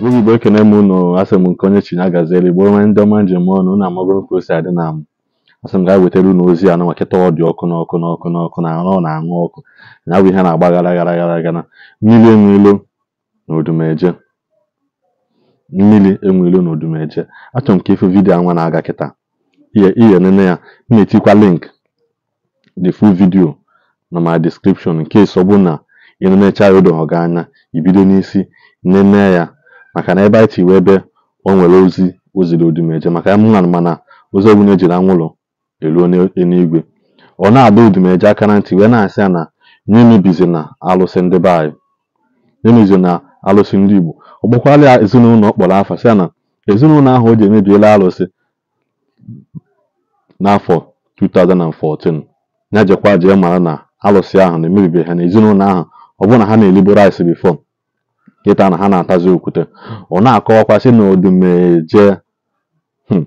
n'oge igbo ekene m unu asị m nke onye chi na gaziere igbo ndị ọma njem ọnụ na amagoro ka o adị na m asị m gaa wetara unu ozi anụ makịta ọ dị ọkụ n'ọkụ n'ọkụ n'ọkụ na arụ na-aṅụ ọkụ na abụ ihe na-agba gara gara gara gara mmiri enwelo na odumeje mmiri enwelo na odumeje achọrọ m ka ifu vidiyo anwa na-aga kịta ihe nene ya na-etikwa link the full video na ma description nke ọ bụ na ị nenecha gị anya ibido n'isi nene ya maka na ebe anyị tiwe ebe o nwere ozi oziri ziri odumeje maka ya mana ozi ọbụla ejiri anwụlọ eruo n'eluigwe ọ na-adọ odumeje aka na ntị wee na-asị ya na nye na alụsị ndị be anyị emebizi na alụsị ndị igbo ọ gbakwala ya ezinụlọ ọ kpọrọ afọ sị ya na ezinụlọ ahụ o ji emebiela alụsị n'afọ 2014 ya jekwa jee mara na alụsị ahụ na emebibe ha na ezinụlọ ahụ ọ bụrụ na ha na-eliboro anyị bifo kịta na ha na-atazi okwute ọ na-akọwakwa na odumeje hmm,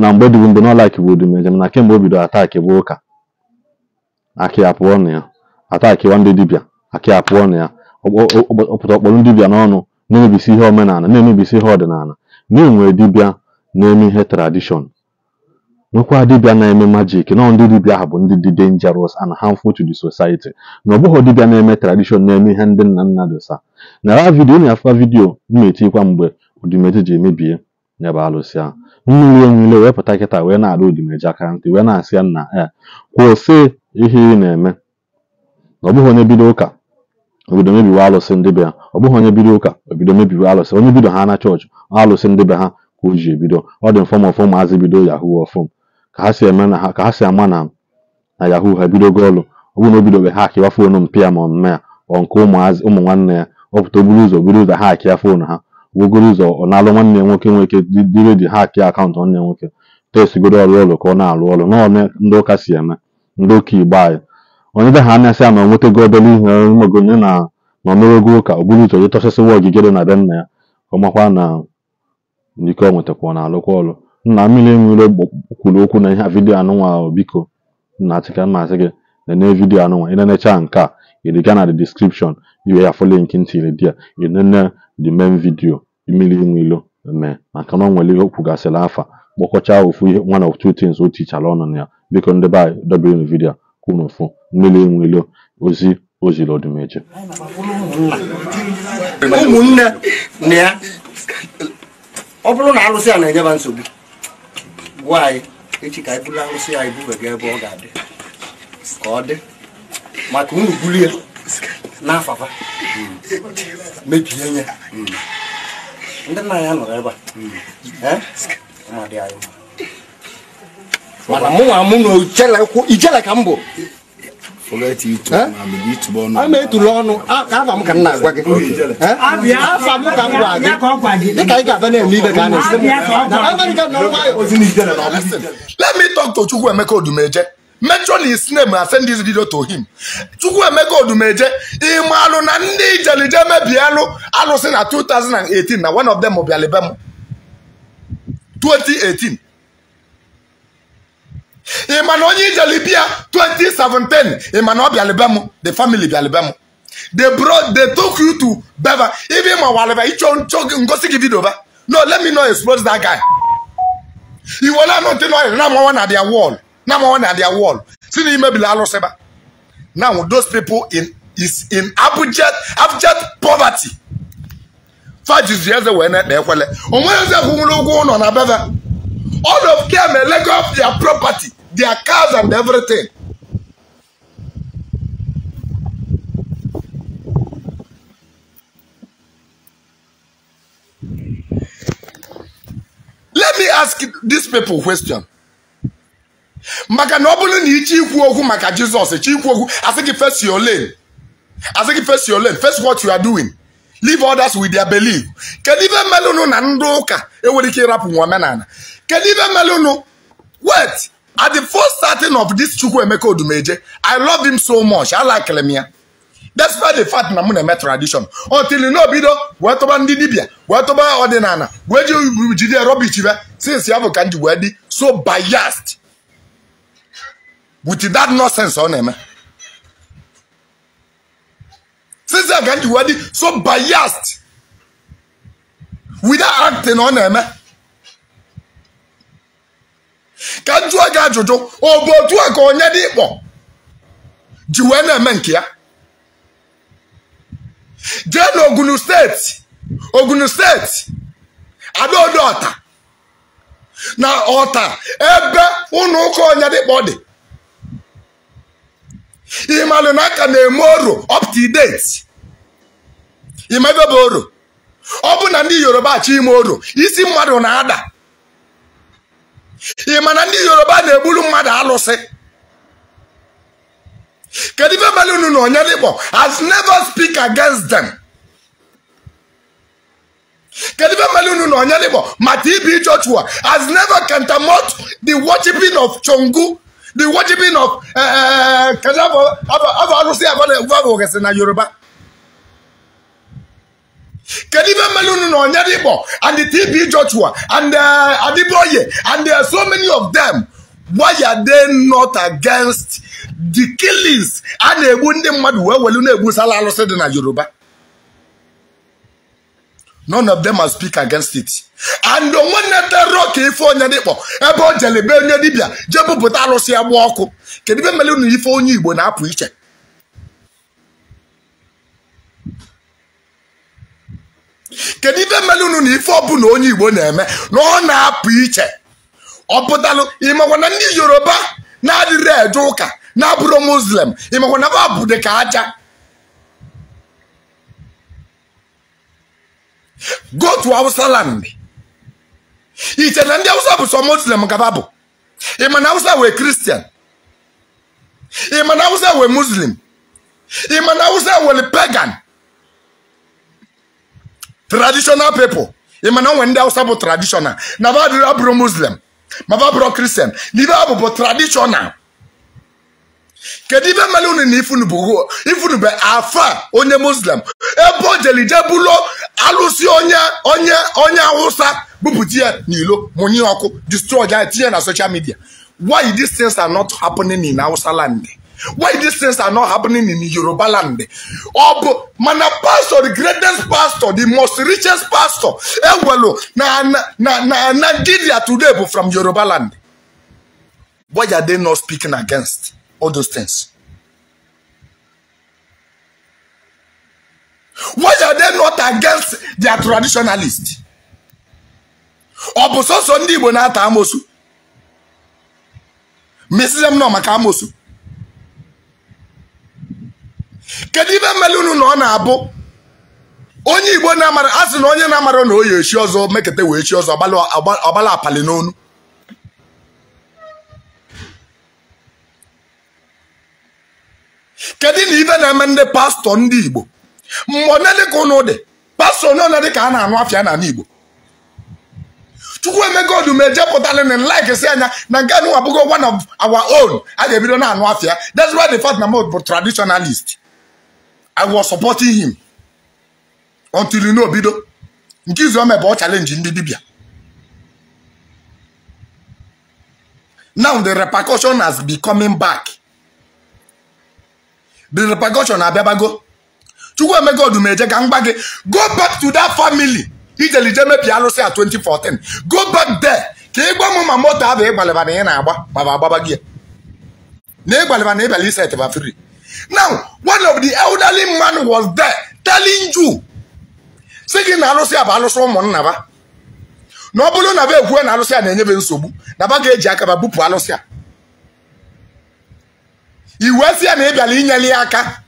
na mgbe dịbu mgbe n'ọlaiki bụ odumeje na kemgbe o bidoro ataki bụ ụka akị apụọ na ya atakiwa ndị dibịa akị apụọ na ya ọpụta ọkpọrọ ndị dibịa n'ọnụ na-emebisi ihe omenala na-emebisi ihe ọdịnala na-enwe dibịa na-eme ihe tradishọn nwekwa dibịa na-eme majik nọ ndị dibịa ha bụ ndị dị dangerous and harmful to the society na ọ bụghị dibịa na-eme tradishọn na-eme ihe ndị nna nna dosa ra vidio na-afa vidio na-etikwa mgbe odimeji ji emebie n'ebe alụsị ahụ mmiri onwile wee pụta kịta wee na-alụ odimeji aka ntị wee na-asị nna e eh, kwụsị ihe ị na-eme na ọ bụghị onye bido ụka obido mebiwe alụsị ndị ha ọ bụghị onye bido ụka obido mebiwe alụsị onye bido ha na chọọchị alụsị ndị be ha ka o ji ebido ọ dị mfọm ọfọm azị bido yahoo ọfọm ka ha si eme na ha ka ha si ama na na yahoo ha ebidogo ọrụ ọ bụrụ na o bidobe ha akịwa foonu mpịa ma ọmme ya ọ nke ụmụ nwanne ya ọ pụta oburu ụzọ buru ụzọ ha akịa foonu ha wogoro ụzọ ọ na-alụ nwanne ya nwoke nwoke dị redio ha akịa akaụntụ nwanne ya nwoke tesigodo ọrụ ụlọ ka ọ na-alụ ọrụ n'ọme ndị ụka si eme ndị ụka igbo anyị onye be ha na-asị ya na o nwetago obele ihe magonye na na omerego ụka o ụzọ jechọsịsịwa ogige dị na be nna ya ọ makwa na ike ọ nwetakwa ọ na-alụkwa ọrụ nna mmiri enwere kwuru okwu na ihe a vidiyo anụnwa biko na achịka mmasị gị nene vidiyo anụnwa ị nenecha nke a ịdịga na the description iwe ya fọ nke ntiri di ya ịnene the main video mmiri enwelo mee maka na ọ nwere ihe okwugasịrị afa kpọkọcha ofu ihe one of two things o tichara ọnụ na ya biko ndị be anyị dobere na vidiyo kwuru ofu mmiri enwelo ozi o ziri ọdụmeje ụmụnne na ya ọ bụrụ na alụsị a na-enyeba nsogbu gwa anyị echi ka anyị bula arụsị ya ibube gị ebe ọ ga-adị ka ọ dị maka unu bulie n'afafa mebie ya ndị nna ya nọrọ ebe a mana mụ mụ na ijele ka m bụ ama etulu ọnụ afa m ka m na-agwa gị afa m ka m gwa gị ah, ka ị ga-aba na-eme ibe ka ah, a na-esi ah, let me talk to Chukwuemeka Odumeje mention his name and na ndị ijelije mebielụ alụsị na 2018 na one of them 2018 ịma na onye ijelibia 2017 ịma na ọ bịalịbe m the family bịalịbe m they brought they took you to beva even ma walịba ịchọ nchọ ngosi gị vidio ba no let me know expose that guy iwele anụ ntị nọrị na amawa na their wall na amawa na their wall si na imebili alụsị ba now those people in is in abject abject poverty fajizi eze wee na-ekpe ekwele onweghị eze kwụnwere ụgwọ ụlọ na beva All of them may let off their property, their cars and everything. Let me ask these people a question. maka na ọ bụrụ na iche ikwu okwu maka Jizọs echi ikwu okwu asị gị face your lane I asị gị face your lane face what you are doing leave others with their belief kedu ife mmelụnụ na ndị ụka enwere ike ịrapụ nwa omenala Kedive Melunu, wait, at the first starting of this Chukwu Emeka Odumeje, I love him so much. I like Lemia. why the fact na mụ na-eme tradition until n'obido wee tụba ndị dibịa wee tụba ọdịnala wee ji jide rubbish bịa since ya bụ ka m ji wee dị so biased with that nonsense on him. since you have a ji wee so biased with that acting on him. eme ka m jụọ gị ajụjụ ọ bụ otu a ka onye dị ịkpọ ji wee na-eme nke ya jee na Ogunu steeti Ogunu steeti adaodo ọta na ọta ebe ụlọ ụka onye dịkpọ dị ịmalụ na aka na-eme oro up to bụ oro ọ bụ na ndị Yoruba achọ ime oro isi mmadụ na-ada ị ma na ndị yoruba na-egburu mmadụ alụsị kedu ife mere unu na onye dịkpọ has never speak against them kedu ife mere unu na onye dịkpọ mata ibi joshua has never countermount the worshiping of chongu the worshiping of kedu afọ arụsị abụ na yoruba Can even Melunu no Nyadibo and the TP Joshua and uh, Adiboye and there are so many of them. Why are they not against the killings a na-egbu ndị mmadụ wee welu na-egbusala alụsị dị na Yoruba? None of them must speak against it. And the one that ife onye dịkpọ ebe o jelebe onye dibịa jee bupụta alụsị ya gba ọkụ kedu ife mere unu ife onye Igbo na-apụ iche kedu ife mere unu na ife na onye igbo na-eme na ọ na-apụ iche ọ pụtalụ ịmakwa na ndị yoruba na-adịrị eje ụka na-abụrụ muslim ịmakwa na ha bụ dị ka aja Gotu to hausa land iche na ndị awụsa bụ sọ muslim ka ha bụ ịma na hausa wee kristian ịma na awụsa wee muslim ịma na awụsa wee pagan traditional people ị ma na onwe ndị awụsa bụ traditional na badịrị abụrụ muslim ma ba kristian na abụ bụ traditional kedu ibe mere unu na bụ afa onye muslim ebe o jelije bulo alụsị onye onye onye awụsa bupụta ya n'ilo mụnye ọkụ destroy ya tinye na social media why these things are not happening in awụsa land Why these things are not happening in Yoruba land? man a pastor, the greatest pastor, the most richest pastor, Eh Ewelo, na na na na Gidia today from Yoruba land. Why are they not speaking against all those things? Why are they not against their traditionalists? Ọ bụ sọsọ ndị Igbo na-ata amosu? Mesịrị m nọ amosu. kedu ibe mmele unu na ọ na-abụ onye igbo na-amara asị na onye na-amara na oyi echi ọzọ mekete wee chi ọzọ ọgbala apali n'onu kedu na ibe na-eme ndị pastọ ndị igbo mgbe onye dịka ụnụ dị pastọ onye onye ka a na-anụ afịa n'ala igbo chukwu emego odume jepụtala na like si anya na nke anụ abụghị one of our own a ga-ebido na-anụ afịa that's why the fact na m bụ traditionalist I was supporting him until you know bido nke izu ome bụ challenge ndị dibịa now the repercussion has been coming back the repercussion abịabago chukwu emego ejega ka gị go back to that family ijelije mebi arụsị a 2014 go back there ka ịgba mụ ma moto abụ ịgbalịba na ị na-agba gbaba agbaba gị na ịgbalịba na ịbịala isetịba free now one of the elderly man was there telling you si gị na alụsị a bụ alụsị ụmụnna ba na ọ bụrụ na ba na alụsị a na-enyebe nsogbu na ba e ga-eji aka ba bupụ alụsị a iwe si ya na ị bịara ya aka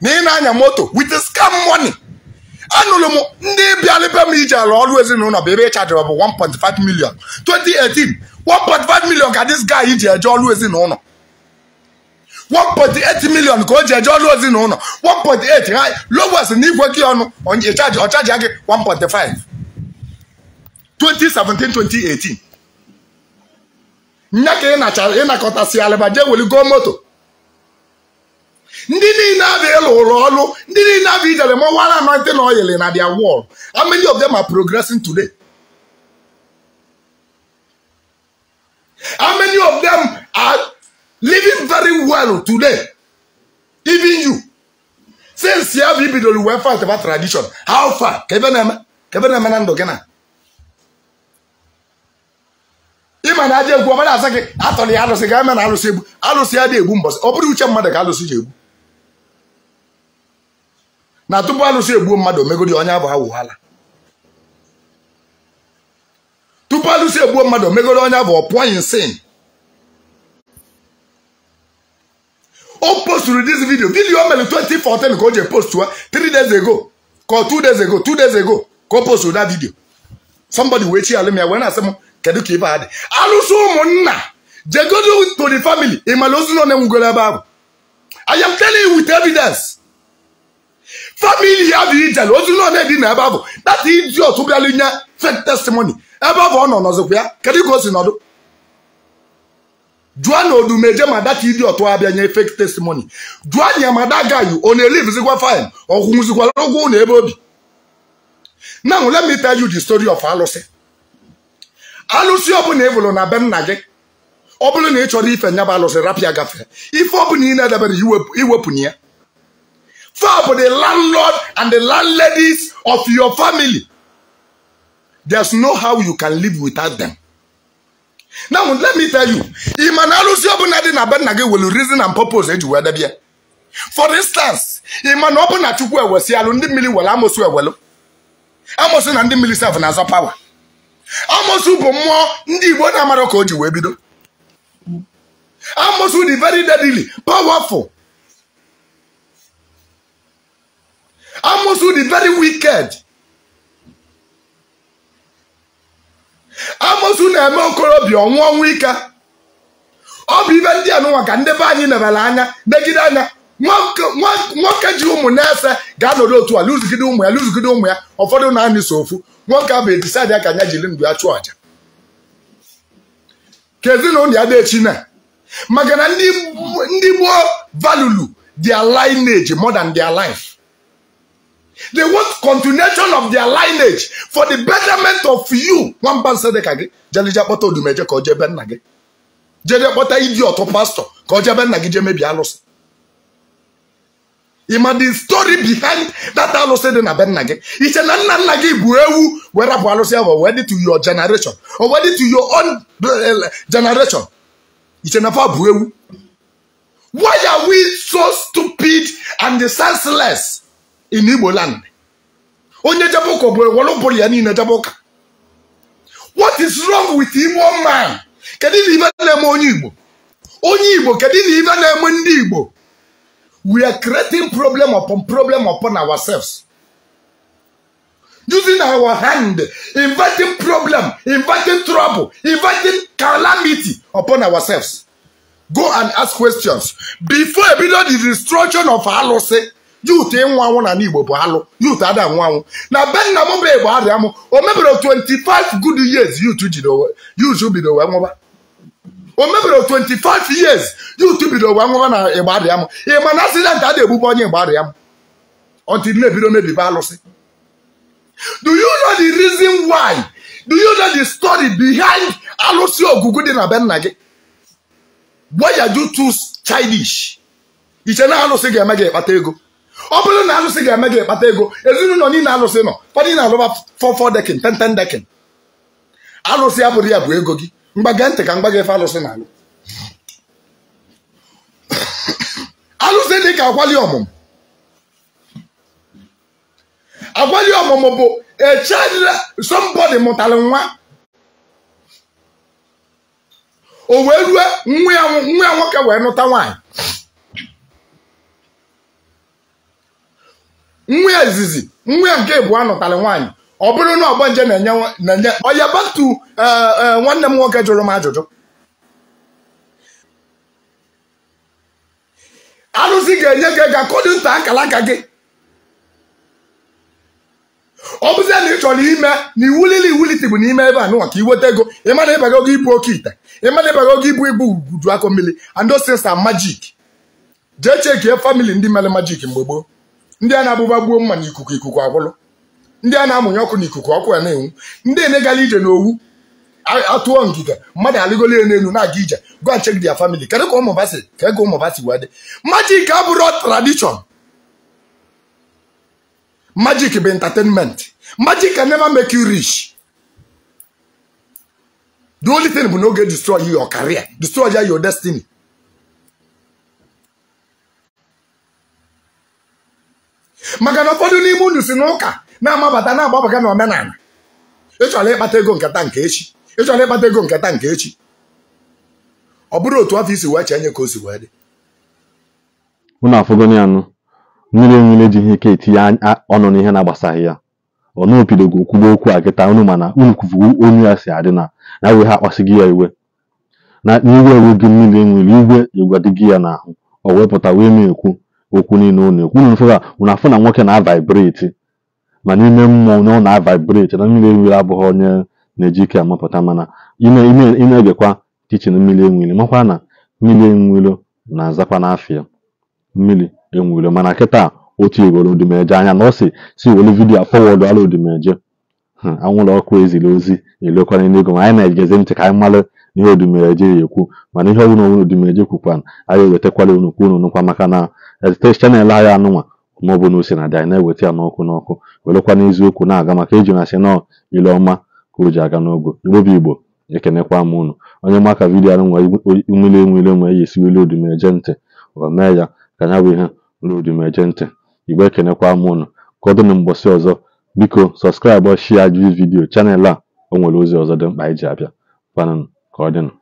na ị e na-anya moto with scam money anụrụ m ndị bịara m iji alụ ọrụ ezinụlọ bụ ebe ị chajiri bụ 1.5 million 2018 1.5 million ka this guy iji eje ọrụ ezinụlọ 1.8 million ka o ji eje ọrụ ozi na ụlọ 1.8 ha lowes na igwe gị ọnụ ọ chaji gị 1.5 2017 2018 nya ka ịnakọtasị alịba jee go moto ndị niile abịa ịlụ ụlọ ọrụ ndị niile abịa ijere ma wara anointing oil na dia wall how many of them are progressing today how many of Kanu today even you since ya bụ ibidoro wee fight about tradition how far ka ebe na-eme na gị na egwu ọbara asa gị atọrọ ya eme na alụsị egbu ya dị egbu ọ uche mmadụ ka alụsị egbu na tupu alụsị mmadụ tupu alụsị mmadụ abụ ọ sin post posturu this video video mere 2014 ka o je postu three days ago ka two days ago two days ago ka post posturu that video somebody wee chi alụ m ya wee na-asị m kedu ka ibe ha dị alụsị go do to the family ị mara ozu na onenwugoro ebe ahụ I am telling you with evidence family have bụ ijele ozu na one dị na ebe ahụ that idiot bịalụ nye fake testimony ebe ahụ no. nọ nọzikwa ya kedu ka o si nọdụ jụọ na odumeje mada ka ịdị ọtụ abịa nye fake testimony jụọ anya mada gaghị ọ na-elivizikwa fine ọkwụnwụzikwara ụgwọ na ebe obi now let me tell you the story of alụsị alụsị ọbụla ịbụrụ na be nna gị ọ bụrụ na ị chọrọ ife nyaba alụsị rapịa gafee ife ọbụla ị na-edebere iwepụ na ya fap the landlord and the landladies of your family there's no how you can live without them. now let me tell you ị ma na alụsị ọbụla dị na be nna gị welu reason and purpose eji wee debie for instance ị ma na ọ chukwu ewesi alụ ndị mmiri were amosu ewelu amosu na ndị mmiri sef na-azọ pawa amosu bụ mmụọ ndị igbo na-amara ka o wee bido amosu dị very deadly powerful amosu di very wicked amosu na-eme okorobịa ọnwụ ọnwụ ike ọ bụ ibe ndị anụnwa ka ndebe be anyị nebere anya megide anya nwoke ji ụmụ na-ese ga-anọdụ otu a lụzigide ụmụ ya lụzigide ụmụ ya ụfọdụ na-anị so ofu nwoke ahụ edisaidi ya ka anya jiri ndụ ya chụọ aja ka ezinụlọ ya dechi na maka na ndị gboo valulu their lineage more than their life They want continuation of their lineage for the betterment of you. Wọ́n bá ń sẹ́dẹ̀ kàgé. Jẹ́lẹ́jẹ́ pọ́tà olùmẹ̀jẹ́ kọ́ jẹ́ bẹ́ẹ̀ nàgé. Jẹ́lẹ́jẹ́ pọ́tà ìdí ọ̀tọ̀ pásítọ̀ kọ́ jẹ́ bẹ́ẹ̀ nàgé jẹ́ mẹ́bi alọ́sì. Ịma the story behind that alụsị dị na be nna gị. Iche na nna nna gị bụ ewu wee rapụ alụsị ahụ wee dị to your generation or wee dị to your own uh, generation. Iche na fa bụ ewu. Why are we so stupid and senseless? in Igbo land onye jebe ụka obodo were ụbụrụ ya niile jebe what is wrong with Igbo man kedu na ibe na-eme onye Igbo onye Igbo kedu na ibe na-eme ndị Igbo we are creating problem upon problem upon ourselves using our hand inviting problem inviting trouble inviting calamity upon ourselves go and ask questions before a ebido the destruction of alụsị youth ịnwụ anwụ na n'Igbo bụ alụ youth ada anwụ anwụ na be nna m bụ Igbo arịa mụ o mebere 25 good years youth bido wee nwụba o mebere 25 years youth bido wee nwụba na Igbo arịa mụ. m ịma na asidentị a na onye Igbo arịa m until na-ebido mebibe alụsị do you know the reason why do you know the story behind alụsị ogugu dị na be nna gị why are you too childish iche na alụsị ga-eme gị ịkpata ego ọ bụrụ na alụsị ga-eme gị kpata ego ezinụlọ niile alụsị nọ ụfọdụ na-alụba fọ fọ dekin tenten dekin alụsị abụrụ ya bụ ego gị mgbaga ntị ka mgbaga efe alụsị na-alụ alụsị dị ka akwali ọmụmụ akwali ọmụmụ bụ echadịla sọmbọdị mụtara nwa o wee rue nwa ya nwoke wee nụta nwaanyị nwa ezizi nwa nke ịbụọ anọtalị nwaanyị ọ bụrụ na ọgbanje na-enye ọya batu eh, eh, nwanne m nwoke jụrụ m ajụjụ arụsị ga-enye gị ego akọdụ nta akala aka gị ọ bụzie na ị chọrọ ime na iwulili iwuliti bụ n'ime ebe a nụwa ka iweta ego ịmana ịbaga ogo ibu oke ite ịmana ịbaga ogo ibu ibu uju akọ mmiri and majik jee chekie famili ndị mere majik mgbe gboo ndị a na-abụba gbuo mma n'ikuku ikuku agwụlụ ndị a na-amụnye ọkụ n'ikuku ọkụ ya na-enwu ndị enegala ije n'owu atụọ ngịga mmadụ alụgolo ya n'elu na-aga ije go and check their family kedu ka ụmụ basi ka ego ụmụ basi wee dị majik abụrụ tradition magic bụ entertainment magic can never make you rich the only thing bụ na oge destroy your career destroy your destiny maka na ụfọdụ n'ime unu si n'ụka na-amabata na-agbabaga na omenala ịchọrọ ịkpata ego nketa nke echi ịchọrọ ịkpata ego nketa nke echi ọ bụrụ otu afọ isi wee chenye ka o si wee dị unu afọgoni anụ mmiri enwere ihe ike etinye ọnụ n'ihe na-agbasaghị ya ọ naopidogo kwuba okwu a kịta unu mana unu kwufuwo onye ya si adị na na we ha akpasighị ya iwe na n'iwe ewu gị mmiri nwere igwe igwadịghị ya n'ahụ o pụta wee mee ekwu okwu niile unu ekwu unu fụra unu afụ na nwoke na-avaibreti ma n'ime mmụọ na ọ na-avaibreti na mmiri enwiri abụghị onye na-eji ike amapụta mana ị na-egekwa tichin mmiri enwiri makwa na mmiri enwiri na-azakwa n'afịa mmiri enwiri mana kịta otu iwere odimeje anya na ọ si si were vidiyo fọwọdụ ala odimeje hmm, anwụrụ ọkụ eziri ozi elekwana n'ego ma anyị na ejezi ntị ka anyị mara n'ihe odumereje ekwu mana ihe ọbụla onwe odumereje kwukwana anyị ewetakwala unu kwa unu nụkwa maka na chanel anyị anụnwa maọbụ na osi na-adị anyị na-eweta ya n'ọkụ n'ọkụ werekwa n'eziokwu na-aga maka iji na-asị nọ ile ọma ka o ji aga n'ogo n'obi igbo ekenekwa m unu onye maka vidiyo anụ nwere umele enwere nwere ya esiwele odumereje ntị o mee ya ka ya bụ ihe ruo odumereje ntị igbo ekenekwa m unu kọdụ na mbọsị ọzọ biko sọskraịbụ shia ji vidiyo chanel a o nwere ozi ọzọ dị mkpa anyị ji abịa kwanụ Кодин